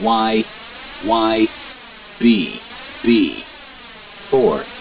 Y, Y, B, B. 4.